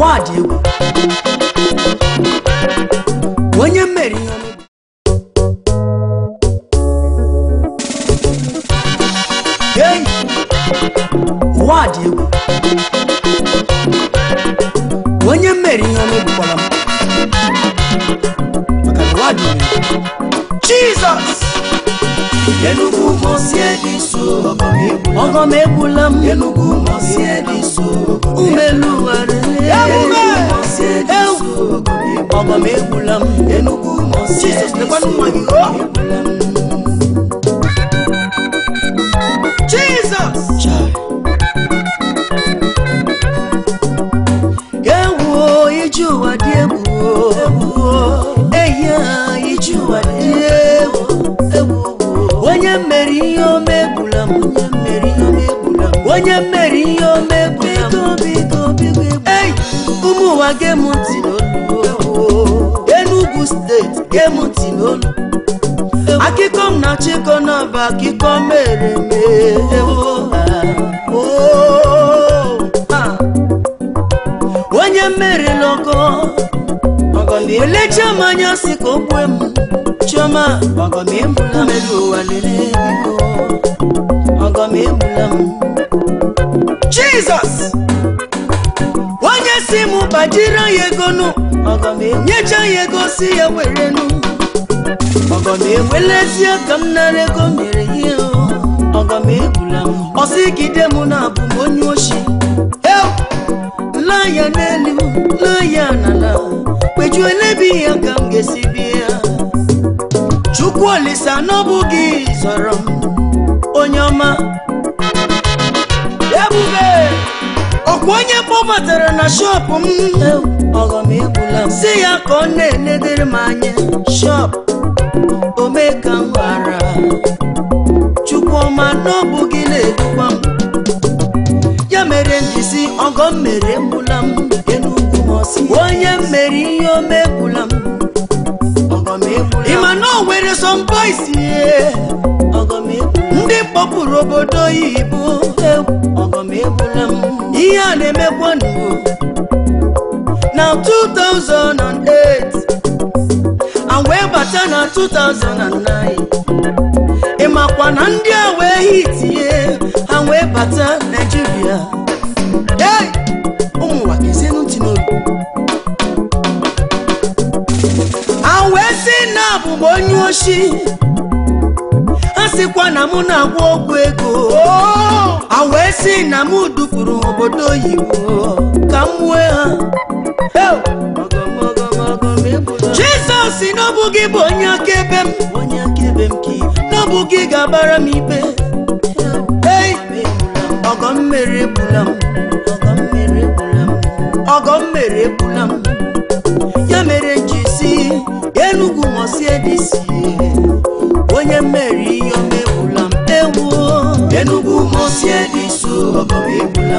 ụwa dị egwu onye mmeri onye mmeri ihe ọnụ egbukwala m maka na ụwa dị egwu Jizọs Enugu mosie dị so ọgọ m egbula m Enugu mosie dị so Mamegulam, Enugu Mosque. Jesus, the one who Jesus! Ewo iju adiebu ewo eya iju adiebu ewo onye mere ihe yo m onye mere ihe omegbula m onye mere ihe omegbula m biko biko biko ei ụmụ ụwa gem ntị n'o emutinolu akụkọ m na chịkọ n'ọba akụkọ mere ah, oh, ah. mere onye mmeri n'ọkọ elecha m anya si ka o gbue m chioma ọgọmebula mmeri ụwa lere biko ọgọmebula m onye si m gbajiri nyecha ya ego si ya nụ. ọgọ m ewelezi m nara ego mere ihe ọgọ m egwula, m ọsịgide m na abụ m onye oshi laa ya n'elu laa anana, n'ala elebi ya ka m ga-esi bịa chukwu olisa n'ọbụ gị m onye ọma ebube onye kpọbatara na shọpụ m ọghọm egbula si ya ka ọ na-enedere m anya shọp omeka m bara chukwuma na ọ na-edukwa m ya mere mbizi ọghọm mere egbula m enugwu m ọsị onye m mere ihe ome egbula m ịma na o nwere some boys ndị kpọpụrụ obodo oyibo ihe a na-emekwa n'ugbo na 2008 and wee bata na 2009 ị makwa na ndị a wee yitie, ha wee bata Naịjirịa hey ụmụnwa n'obi ha wee si na abụm onye oshi ha sịkwa na mụ na-agwọ ọgwụ ego ha wee si na mụ dupụrụ obodo oyibo ka m ha jizọs n'ọbụ gị bụ onye akaebe m n'ọbụ gị ga abara m ikpe ọgọ mmeri egbula m ọgọ mmeri egbula m ya mere ji si enugwu mosie dịsi onye mmeri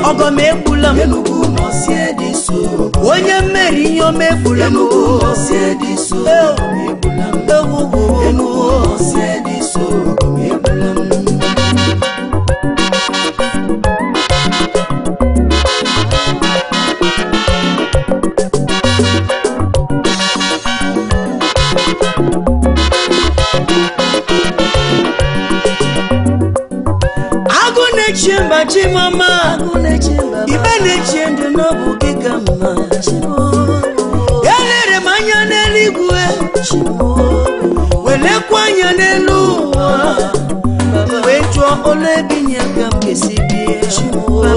ọgọm egbula m onye mmeri ihe o mefula m chimama ibe na-echie ndị n'ọbụ gị ka mma elere m anya n'eluigwe welekwa anya n'elu ụwa wee jụọ ọla ebinye ka m ga-esi bie gị ka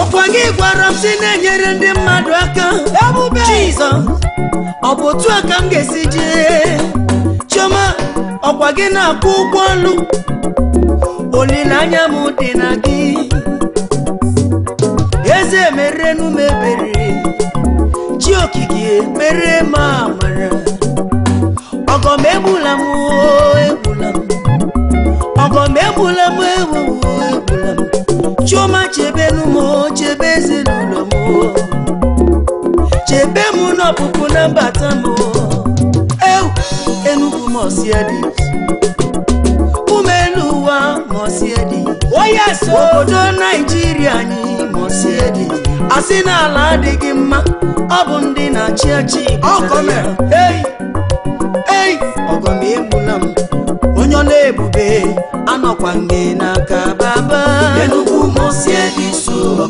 ọkwa gị gwara m si na-enyere ndị mmadụ aka Jizọs ọ bụ otu aka ka m ga-esi jee ọkwa gị na-akwụ ụgwọ ọlụ olileanya m dị na gị eze merenu m ebere chi okike mere m amara ọgọ m egbula m egbula m ọgọ m egbula m egbula m chioma chebenu m chebe ezinụlọ m chebe m n'ọpụpụ na mbata m Chukwu mọsiedi umelu ụwa mọsiedi obodo Naijiria anyị mọsiedi asị n'ala adịghị mma ọ bụ ndị na-achị achị ei ọgọm egbula m onye ọ na-ebube anọkwa nge n'aka baba Enugu mọsiedi so oh.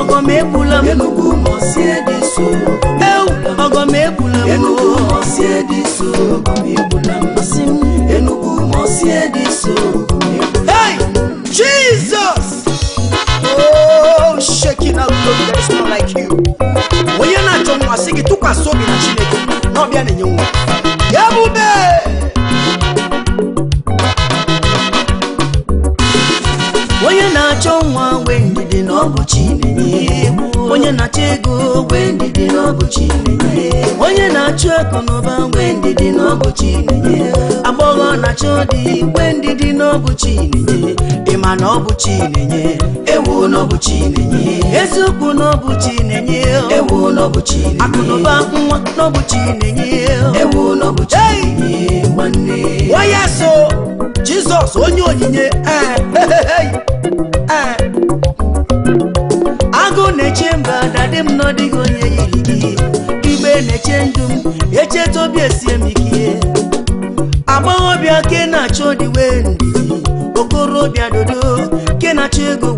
ọgọm egbula m ediso enugu mosi ediso Hey Jesus Oh shaking out God there is no like you Wonyana chomwa sigi tukwa sobi na chineke Nobia ni nyumwa na-achụ ego n'ụba mgbe ndidi n'ọbụ Chinenye agbọghọ na achụ dị mgbe ndidi n'ọbụ Chinenye ịma na ọ bụ Chinenye ewu n'ọbụ Chinenye eziokwu n'ọbụ Chinenye ewu n'ọbụ Chinenye akụnụba nwa n'ọbụ Chinenye ewu n'ọbụ Chinenye nwanne waya so Jizọs onye onyinye eh, eh. agụ na-eche mba na dị m n'ọdịghị onye yiri gị obi esie m ike amaghị ke na-achọ ọdịwe ndidi okorobịa dodo ke na-achọ ego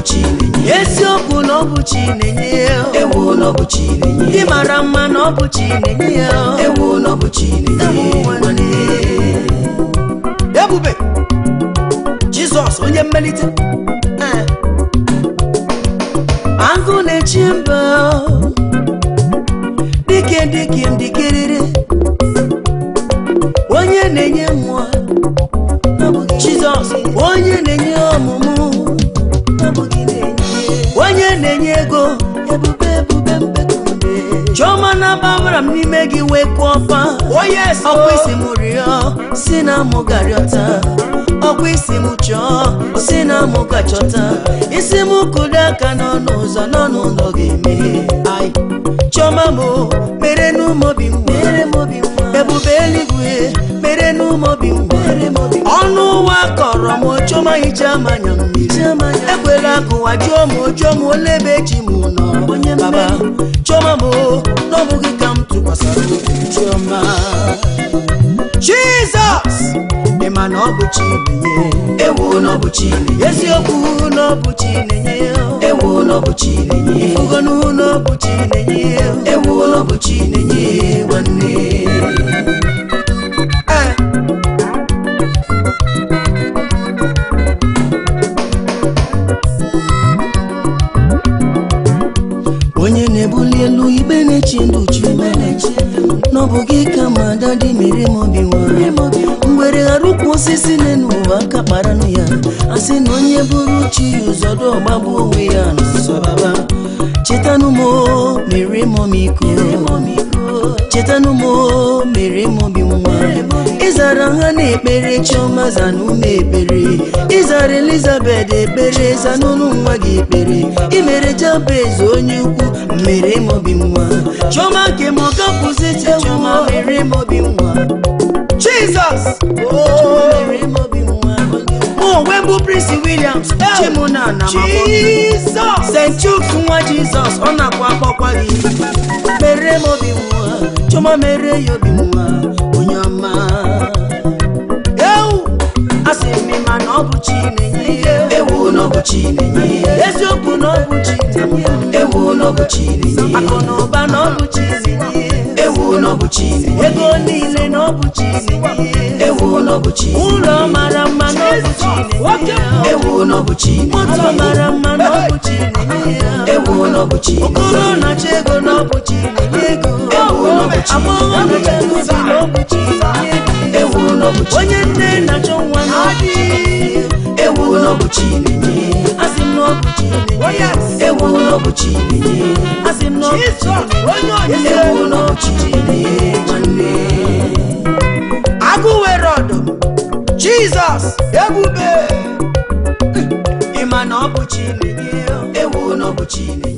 na-enye eziokwu na ewu na mma na ọ na-enye ya ewu ebube Jizọs onye mmelite na-enye ego ebube chioma na-ababara m n'ime gị wee kwuo ọfa oh, ọkwa isi m rịọ si na mụ garịọta ọkwa isi m chọọ si na mụ isi m kụdo aka n'ọnụ ụzọ n'ọnụ ụlọ ga eme chioma m mere n'ụmụ obi m ọnụ kọrọ m ochioma hicha manya mmiri ekwela ka ụwa jụọ m ochioma ole ebe eji m nọ baba chioma m na ka m jizọs ị ma na ọ bụ ewu na ọ eziokwu na ọ ewu ewu agadi mere m obi mgbere ghara ukwu osisi na-enu ụwa aka kparanụ ya asị na onye bụrụ chi ya ụzọdụ ọgbagbu onwe ya n'ụsọbaba chetanụ m mere m omiko chetanụ m mere m obi nwa ịzara ha na-ekpere chiọma zana ume ekpere ịzara Elizabet ekpere zanụnụ nwa gị ekpere imere jabez onye ukwu mere m obi nwa Chioma nke m chioma. rí mo Jesus. ojú mi rí mo bí Prince Williams chimuna Jesus, Saint mi. St. Jesus ọ na-akwa akpọkwa gị. mere mo bí wọn chọma mere ya obi nwa onye ọma. ewu a sị m ma na ọ bụ Chinenye. ewu na ọ bụ Chinenye. eziokwu na ọ bụ ewu na ọ bụ Chinenye. akụ na ụba na ego niile n'ọbụ chizi ụlọ mara mma n'ọbụ chizi na-achọ ego n'ọbụ chizi ego n'ọbụ chizi na onye nne na-achọ nwa n'ọbụ ewu n'ọbụchi ilinye oh, ewu ewu agụ were ọdụ! jizọs ebube ịma na ọbụchi ewu n'ọbụchi ilinye